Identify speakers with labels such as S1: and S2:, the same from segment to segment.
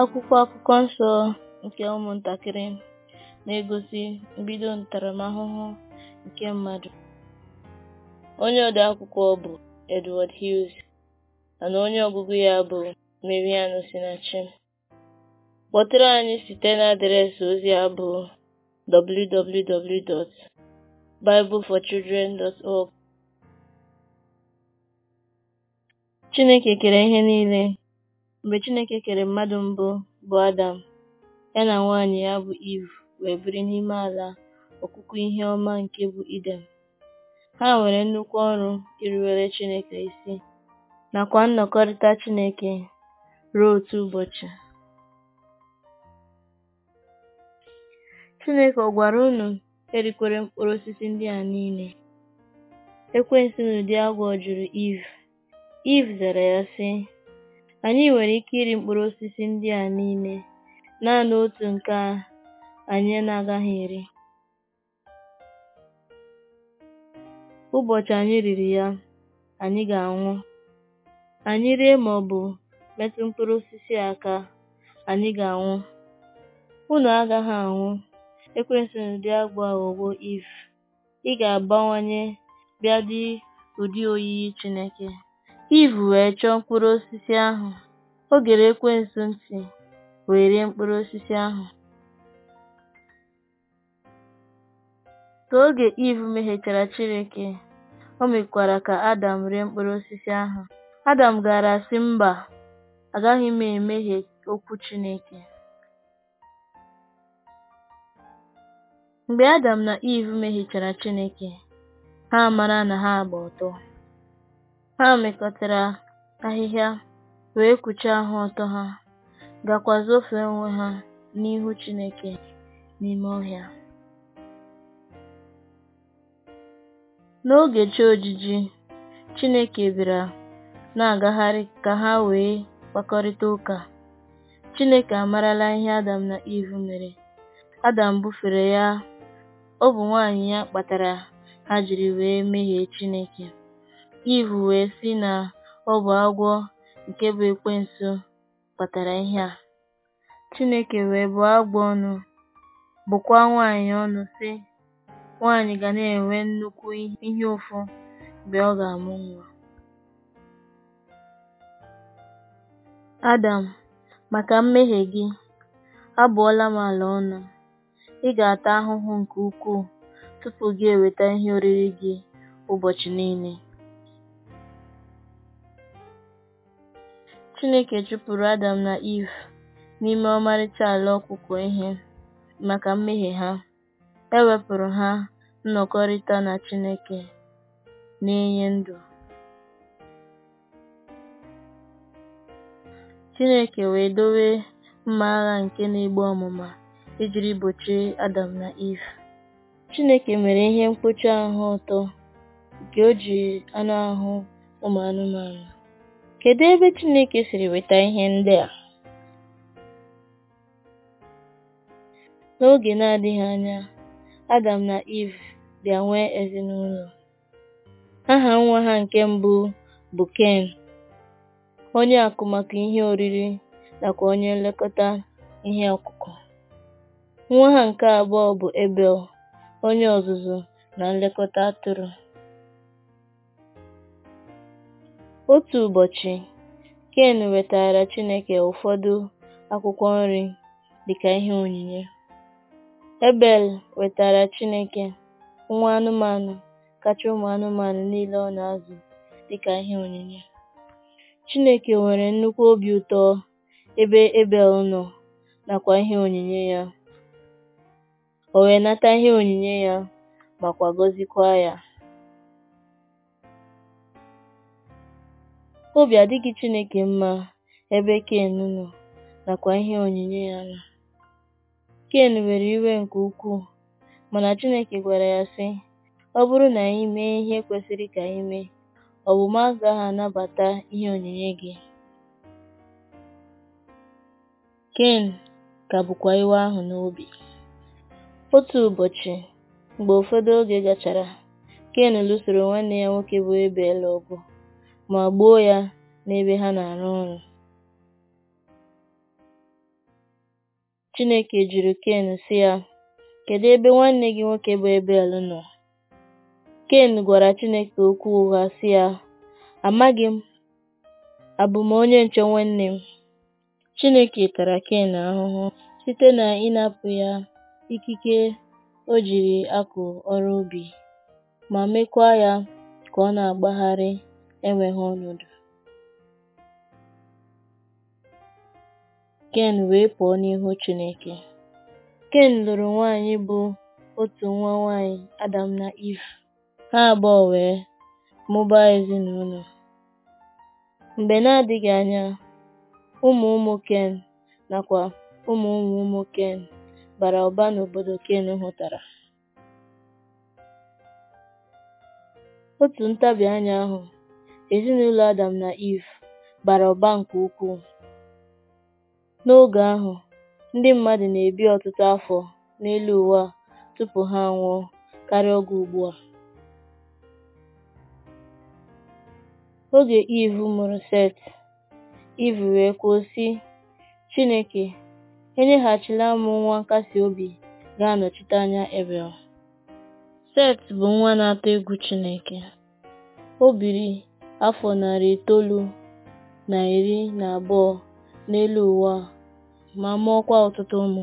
S1: Akwụkwọ Akụkọ Nsọ nke ụmụntakịrị na-egosi mbido ntaramahụhụ nke mmadụ. Onye akwụkwọ bụ Edward Hughes mana onye ọgụgụ ya bụ marian sinachin Kpọtụrụ anyị site na adreesị ozi a bụ www.bibleforchildren.org. Chineke kere ihe niile. Mgbe Chineke kere mmadụ mbụ, bụ Adam, ya na nwanyị ya, bụ Iv wee biri n'ime ala ọkụkụ ihe ọma nke bụ Idem. ha nwere nnukwu ọrụ irubere Chineke isi nakwa nnọkọrịta Chineke ruo otu ụbọchị. Chineke ọ gwara unu erikwere mkpụrụ osisi ndị a niile? Ekwensu n'ụdị agwọ jụrụ Iv Iv zara ya sị Anyị nwere ike iri mkpụrụ osisi ndị a niile, naanị otu nke a anyị na-agaghị eri. Ụbọchị anyị riri ya, anyị ga-anwụ. Anyị rie bụ metụ mkpụrụ osisi aka, anyị ga-anwụ. Unu agaghị anwụ. ekwesịrị ụdị agwọ aghọgwo Iv. Ị ga-abawanye bịa dị ụdị oyiyi Chineke. Iv wee chọọ mkpụrụ osisi ahụ, ogere gere ekwensu ntị wee rie mkpụrụ osisi ahụ. Ka oge Iv mehiechara Chineke, o mekwara ka Adam rie mkpụrụ osisi ahụ. Adam gaara asị mba, agaghị m emehie okwu Chineke. Mgbe Adam na Iv mehiechara Chineke, ha mara na ha agba ọtọ. Ha mekọtara ahịhịa wee kpuchie ha ọtọ ha, gaakwa ofe onwe ha n'ihu Chineke n'ime ọhịa. N'oge chi ojiji, Chineke bịara na-agagharị ka ha wee kpakọrịta ụka. Chineke amarala ihe Adam na Eve mere. Adam bufere ya, ọ bụ nwanyị ya kpatara ha jiri wee mehie Chineke. Ivu wee sị na ọ bụ agwọ nke bụ ekwensu kpatara ihe a. Chineke wee bụọ agwọ ọnụ, bụkwa nwanyị ọnụ sị, Nwanyị ga na-enwe nnukwu ihe ụfụ mgbe ọ ga-amụ nwa. Adam, maka mmehie gị, abụọla m ala ọnụ. Ị ga-ata ahụhụ nke ukwuu tupu gị eweta ihe oriri gị ụbọchị niile. Chineke chụpụrụ Adam na Iv n'ime ọmarịcha ala ọkụkọ ihe maka mmehie ha, e wepụrụ ha nnọkọrịta na Chineke na-enye ndụ. Chineke wee dowe mma agha nke na-egbu ọmụma ijiri gbochie Adam na Iv. Chineke mere ihe mkpuchi ahụ ụtọ nke o ji anụ ahụ ụmụ anụmanụ. Kedu ebe Chineke siri weta ihe ndị a? N'oge na-adịghị anya, Adam na Eve bịa nwee ezinụlọ. Aha nwa ha nke mbụ bụ Ken, onye akụ maka ihe oriri nakwa onye nlekọta ihe ọkụkụ. Nwa ha nke abụọ bụ Abel, onye ọzụzụ na nlekọta atụrụ. Otu ụbọchị, Ken wetaara Chineke ụfọdụ akwụkwọ nri dịka ihe onyinye. Abel wetaara Chineke nwa anụmanụ kacha ụmụ anụmanụ niile ọ na-azụ dịka ihe onyinye. Chineke nwere nnukwu obi ụtọ ebe Abel nọ nakwa ihe onyinye ya. O wee nata ihe onyinye ya makwa gọziekwa ya. Obi adịghị Chineke mma ebe Ken nọ nakwa ihe onyinye ya nọ. Ken nwere iwe nke ukwuu, mana Chineke gwara ya sị, “Ọ bụrụ na anyị mee ihe kwesịrị ka anyị mee, ọ agaghị anabata ihe onyinye gị.” Ken ka bụkwa iwe ahụ n'obi. Otu ụbọchị, mgbe ụfọdụ oge gachara, Ken lụsoro nwanne ya nwoke bụ Abel ọgụ. ma gbuo ya n'ebe ha na-arụ ọrụ. Chineke jụrụ Ken sị ya, “Kedụ ebe nwanne gị nwoke bụ Ebel nọ?” Ken gwara Chineke okwu ụgha sị ya, “Amaghị m, abụ m onye nche nwanne m?” Chineke tara Ken ahụhụ site na ịnapụ ya ikike o jiri akụ ọrụ obi, ma mekwa ya ka ọ na-agbagharị enweghị ọnọdụ. Ken wee pụọ n'ihu Chineke. Ken lụrụ nwanyị bụ otu nwa nwanyị Adam na Eve. Ha abụọ wee mụbaa ezinụlọ. Mgbe na-adịghị anya, ụmụ ụmụ Ken nakwa ụmụ ụmụ ụmụ Ken bara ụba n'obodo Ken hụtara. Otu ntabi anya ahụ Ezinụlọ Adam na Iv bara ụba nke ukwuu. N'oge ahụ, ndị mmadụ na-ebi ọtụtụ afọ n'elu ụwa tupu ha anwụọ karịa oge ugbu a. Oge Iv mụrụ Set, Iv wee kwuo sị, “Chineke, enyeghachila m nwa nkasi obi ga-anọchite anya Ebel.” Set bụ nwa na-atụ egwu Chineke. O biri afọ narị itoolu na iri na abụọ n'elu ụwa ma ma mụọkwa ọtụtụ ụmụ.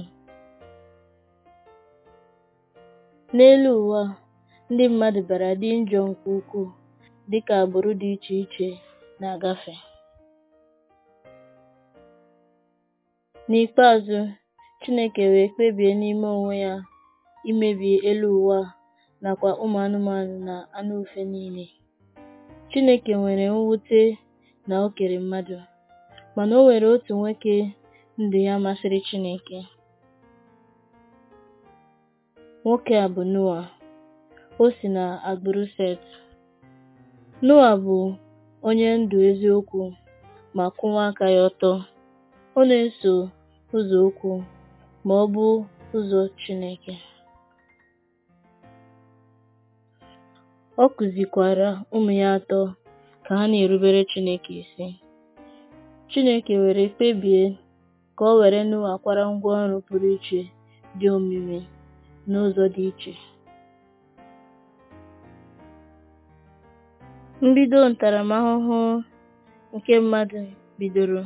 S1: N'elu ụwa ndị mmadụ bịara dị njọ nke ukwuu dịka agbụrụ dị iche iche na-agafe. N'ikpeazụ, Chineke wee kpebie n'ime onwe ya imebi elu ụwa nakwa ụmụ anụmanụ na anụ ufe niile. Chineke nwere mwute na o kere mmadụ, mana o nwere otu nwoke ndụ ya masịrị Chineke. Nwoke a bụ Noa. O si na agbụrụ Set. Noa bụ onye ndụ eziokwu ma kwụwa aka ya ọtọ. Ọ na-eso ụzọ okwu ma ọ bụ ụzọ Chineke. Ọ kụzikwaara ụmụ ya atọ ka ha na-erubere Chineke isi. Chineke were kpebie ka o were Noa kwara ọrụ pụrụ iche dị omimi n'ụzọ dị iche. Mbido ntaramahụhụ nke mmadụ bidoro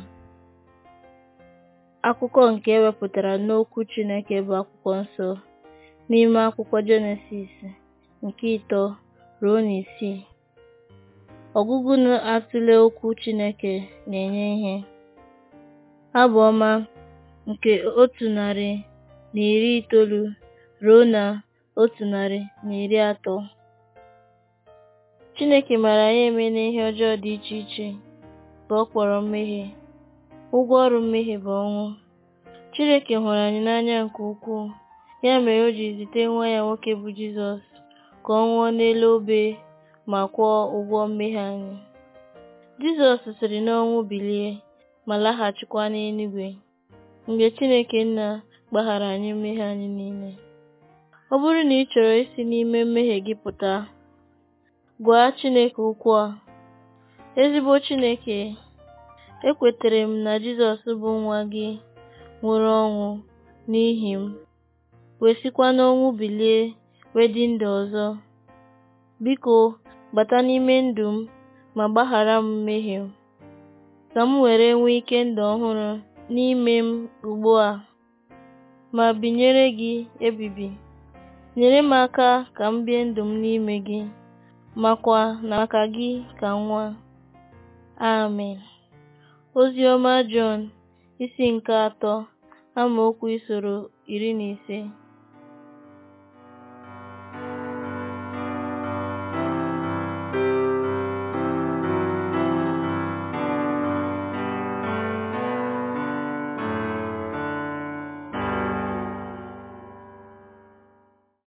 S1: akụkọ nke ewepụtara n'Okwu Chineke bụ Akwụkwọ Nsọ n'ime akwụkwọ Jenesis nke ịtọ ruo n'isii. na atụle okwu Chineke na-enye ihe. ha Abụ ọma nke otu narị na iri itoolu ruo na otu narị na iri atọ. Chineke mara anyị eme n'ihe ọjọọ dị iche iche bụ ọ kpọrọ mmehie. Ụgwọ ọrụ mmehie bụ ọnwụ. Chineke hụrụ anyị n'anya nke ukwuu, ya mere o ji zite nwa ya nwoke bụ Jizọs ka ọ nwụọ n'elu obe ma kwụọ ụgwọ mmehie anyị. Jizọs siri n'ọnwụ bilie ma laghachikwa n'eluigwe mgbe Chineke Nna gbaghara anyị mmehie anyị niile. Ọ bụrụ na ị chọrọ isi n'ime mmehie gị pụta, gwa Chineke ụkwụ a. Ezigbo Chineke, ekwetere m na Jizọs bụ nwa gị nwụrụ ọnwụ n'ihi m, wee sikwa n'ọnwụ bilie dị ndụ ọzọ. Biko, bata n'ime ndụ m ma gbaghara m mmehie ka m were nwee ike ndụ ọhụrụ n'ime m ugbu a, ma binyere gị ebibi. Nyere m aka ka m bie ndụ m n'ime gị, makwa na maka gị ka nwa. Amen. Ozi ọma Jọn, isi nke atọ amaokwu isoro iri na ise.